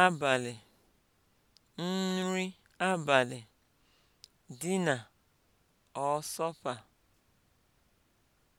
abalị, nri abalị, dị na supper